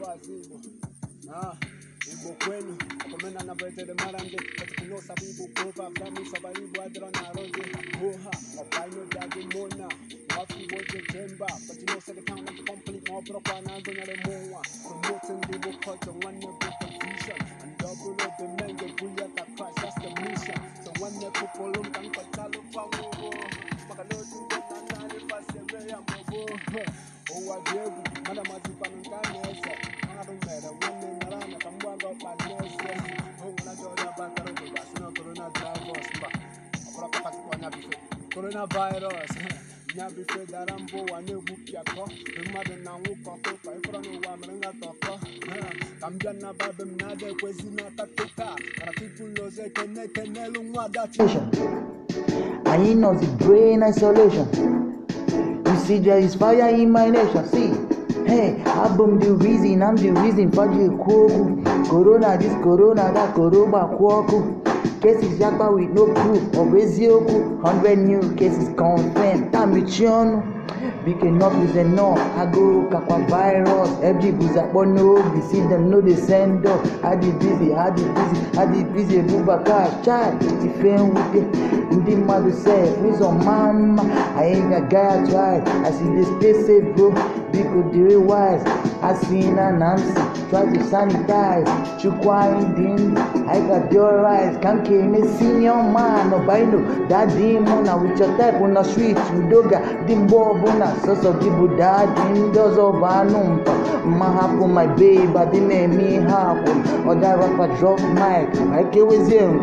watu ibo kwenu akomena marande kova adra na jemba you know said kwa buya that's the mission so one the people um kwa ngogo makalo tu na pasebe ya oh coronavirus nya bife dara mbụ ụwa na-egwupịakọ mmadụ na nwụkọ kụkọ ịfọrọ n'ụwa mere nghata ọkọ ka m bịa na babem na-ada ekwezi n'aka tụka kara tupu lozo ekene ekenelu nwa adachi anyị nọzi brain isolation you see there is fire in my nation see Hey, album the reason, I'm the reason, for Faji Kogu. Corona this, Corona that, Koroba Kwaku. cases yakpa with no proof of bụ eziokwu 100 new cases confirmed tamichi ọnụ biko enough is enough agụụ kakwa virus every bụzi akpọ n'obi see them no dey send up adị busy adị busy adị busy ebubaka chai ife nwute ndị mmadụ sef ụzọ maa mma anyị ga-agaghachi as e dey stay safe bro biko dịrị wise Hasina namsi, try to sanitize. Chukwindini, I got your eyes. Kamke imesinyo mano baino. Dadi muna wichotai puna sweet udoga. Dimbo buna soso gibu dadi ndozo vanumpa. Mahapu my babe, adine mi hapu. Oda rapa drop mic, aike wezim.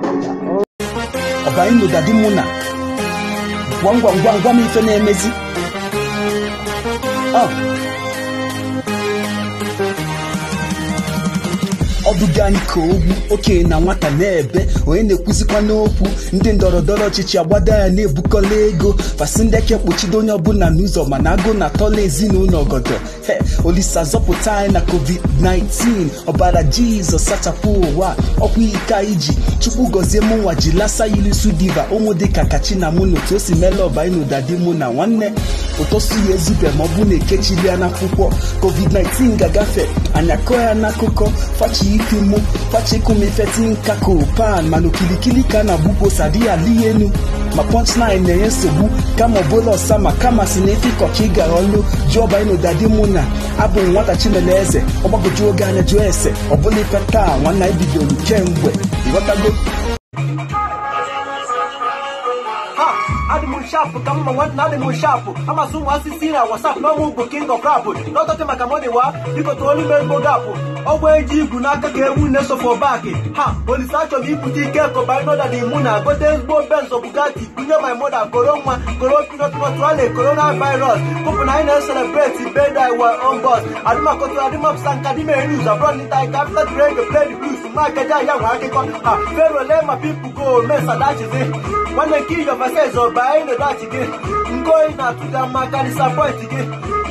Obaino dadi muna. Gwangwa gwangwa mito Oh. na-eduga anyị ka ogwu okenye na nwata na-ebe onye na-ekwuzikwa n'okwu ndị ndọrọndọrọ ọchịchị agbada ya na-ebukọla ego fasị ndị eke kpuchido onye ọbụla n'ụzọ mana agụ na atọla ezinụlọ ọgọdọ he olisa zọpụta anyị na covid-19 ọbara jizọs sachapụ ụwa ọkwa ike anyị chukwu gọzie mụnwa ji lasa yilisu diva ụmụ dịka na mụ na otu o si meela ọba anyị na ụdadị mụ na nwanne ụtọsu ya ezube ma ọ bụ na ekechilia n'akwụkwọ covid-19 ga-agafe anya kọọ ya n'akụkọ fachi ike Kemo pachekomefe kako pan mana okilikili ka na-abụkwosa di ya ihe elu ma punchline na-enye nsogbu kama ọbụla ọsa ma kama si na ịkọ ka ị gara ọlụ juọbainodadi mụ na abụghị nwata chinele eze ọgbagoju oge anya jụọ ese ọbụla ife taa nwanna ibidoro kemgbe ịghọtago animal sharp kama mangwan na animal sharp ama zoom a whatsapp no mugbo king of rap no tote maka money wa biko to only merry go gap ọgwụ eji igwu n'aka ka ewu na-esofọ baaki ha olise achọghị ibute ike kọba ịnọda na imu na gote ezigbo benzo bugatti kunye my moda koro nwa koro pinotmotwale corona virus kụpụ na anyị na-eselebreti bedai wa ọgọst adịmakọtụ adịmapụsa nka dị mere niuz abụrọ nịta ike afta drege pled blues I'm akaja ya nwe akụkọ ha ferole ma pipu go mesadachịzi nwanne kill your verses ọba na dat gị nke oyi na-atụga mma karịsa pọint gị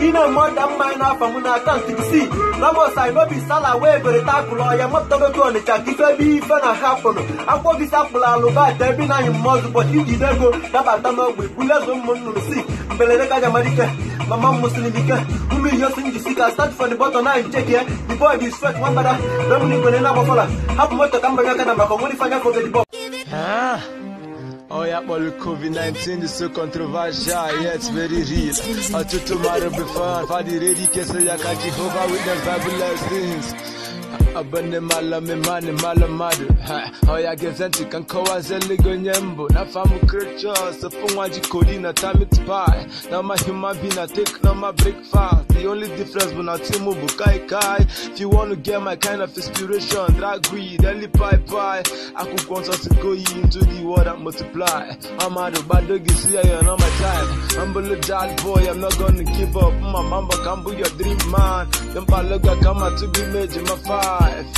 ine mọda mma anyị n'afọ m na akaụntụ gị si Ramos Ainobi Sala wee bere takụlụ ọya mapụtagogo Ọnịcha ka ife ebe ife na hapụnụ akwụkwọ gị sapụlụ alụbata ebe na anyị mmọzụ ụbọchị ijide ego dabata n'ogbe bulezo ụmụ nnụrụ si mberede ka jamadike mama mụsịrị dike ụmụ ihe osi njisi ka start from the bottom na ncheki ya the boy dị sweat nwambara Dominic Benena gbafọla hapụ moto ka mbanye aka na maka onwere ife anya fọgedibọ Oh yeah, well, COVID-19 is so controversial, yeah, it's very real. I took tomorrow before, I find it ready, can say I can't keep over with the fabulous things abone malame mane malamade hoya gezanti kankowa zeligo nyembo nafamu creature sefungwa jikolina time it pie na ma human being I take now my breakfast the only difference when I too much. kai kai if you want to get my kind of inspiration drag weed eli pie pie akukonsa to go into the world and multiply I'm out of bad dog is here you not my type I'm a little boy I'm not gonna give up my mama can be your dream man them paloga come out to be made in my fire life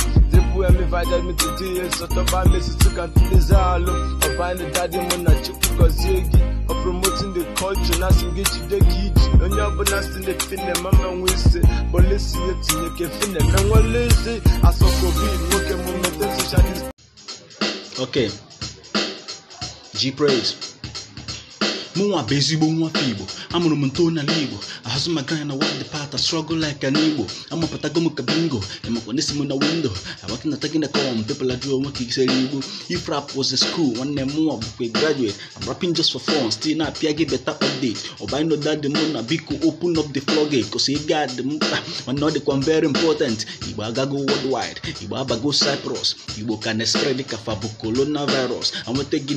wemivada mititiyeso tobamesisikantulizalo obani dadi mụ na chukwu gọzie gị promoting the culture na asị gị jide gị iji onye ọbụla si na-efine ma mmenwe isi polisi etinye ka efine menwele isi asọkobi nwoke mụ mete socialist okay g praise busy mụnwa bụ ezigbo nwata igbo amụrụ m nto n'ala igbo ahụzụ m aga ya na wad pata strọgụl laik na igbo amapụtago m ka bingo emakwa n'esi m na windo abaki na tagina com pepụla jụọ nwoke isere If rap was a school one m mụnwa bụkwa graduate I'm rapping just for fun still na-apịa gị beta update Or ọbanyị no dad mụ na biko open up the floodgate he got the m one mana the dịkwa very important igbo agago worldwide igbo abago cyprus igbo ka na-espred ka fa bụ coronavirus anweta gị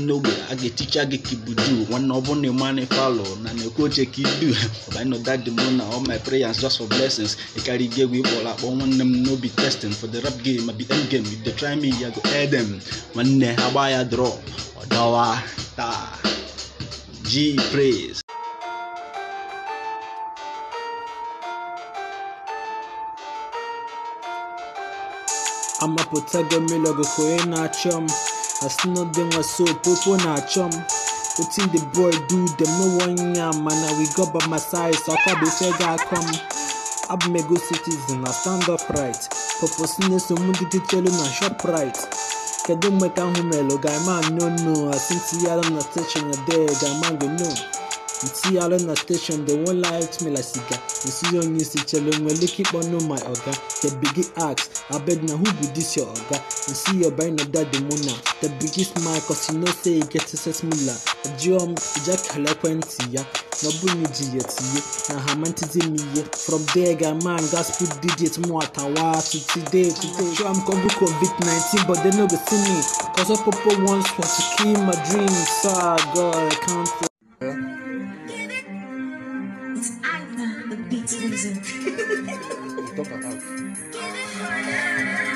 I get ga I get kibudu One of one your money follow. Na me go check it I know that the moon all my prayers just for blessings. I carry gay we all up one them no be testing. For the rap game, I be end game. If they try me, I go air them. have day how I draw. Odawa ta G praise. I'm a potago I still not doing my soap, waso popo na chum. Wetin the boy do dem no wan yam and na we God by my side So sọkọ dey check out come. Abumego citizen na stand up right. Purpose na so mu tell chelu na shop right. Kedu mmeka ahụ melụ ga-ama nnụnụ asịntị ya na steshin dee ga-ama gị nnụnụ nti alo na station the one light me la sika nsi onye si chelo nwere ike ịkpọ no my oga the big ask abeg na who be this your oga nsi your buy no that the mona the big smile cause you know say you get success mula ajiom ija kala ekwentị ya na ọbụ na iji ya tinye na ha mantizi from there ga man gas put digit mu atawa to today today sure i'm come book covid 19 but they no go see me cause all popo wants want to kill my dreams so ah, god i can't Beats Weezer.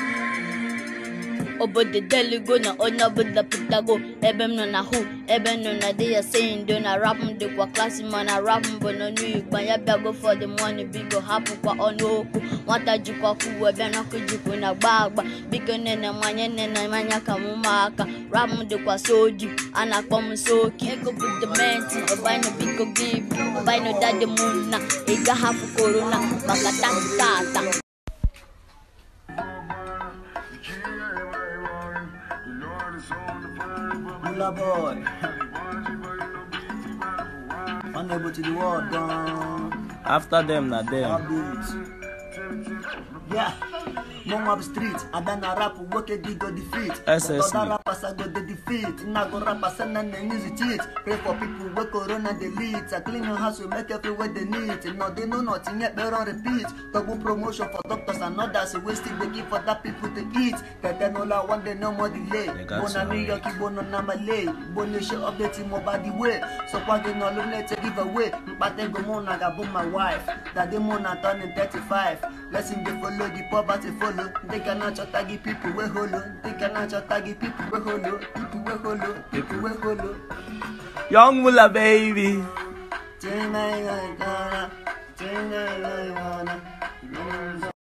deli go na onye ọbụla pụtago ebe m nọ na hu ebe m nọ na di ya seindo na rap m dịkwa klasị mana rap m bụ n'ọnụ igbo ya bịago for the money biko hapụkwa ọnụ okwu nwata jikwa fuwe ebe n'ọkụ jikwu na gba agba biko nene manye nene manya ka m ụmụaka rap m dịkwa soji a na-akpọ m soki ego bụ dementi ọbanyụ biko gị ibu ọbanyụ dadi mụ na ị gaghapụ korona maka tata popular boy. Unable to the world, done. After them, not them. Yeah, mom up street, and then I rap work a go defeat. SS. Other rappers I go the defeat. Now go rappers and then they use cheat. Pray for people where corona they lead. I clean your house, we make everywhere they need. No, they know nothing yet, better repeat. Double promotion for doctors and others. Wasting the they for that people to eat. That then all I want, they no more delay. Bona New York, on Bona Namalay. Bona shit up the team about the way. So why they no look let give away. But they go more, I got my wife. That they more than 35 life blessing dey follow the poverty follow they cannot tagi people wey hollow they cannot tagi people wey hollow people wey hollow people wey hollow. young mula baby.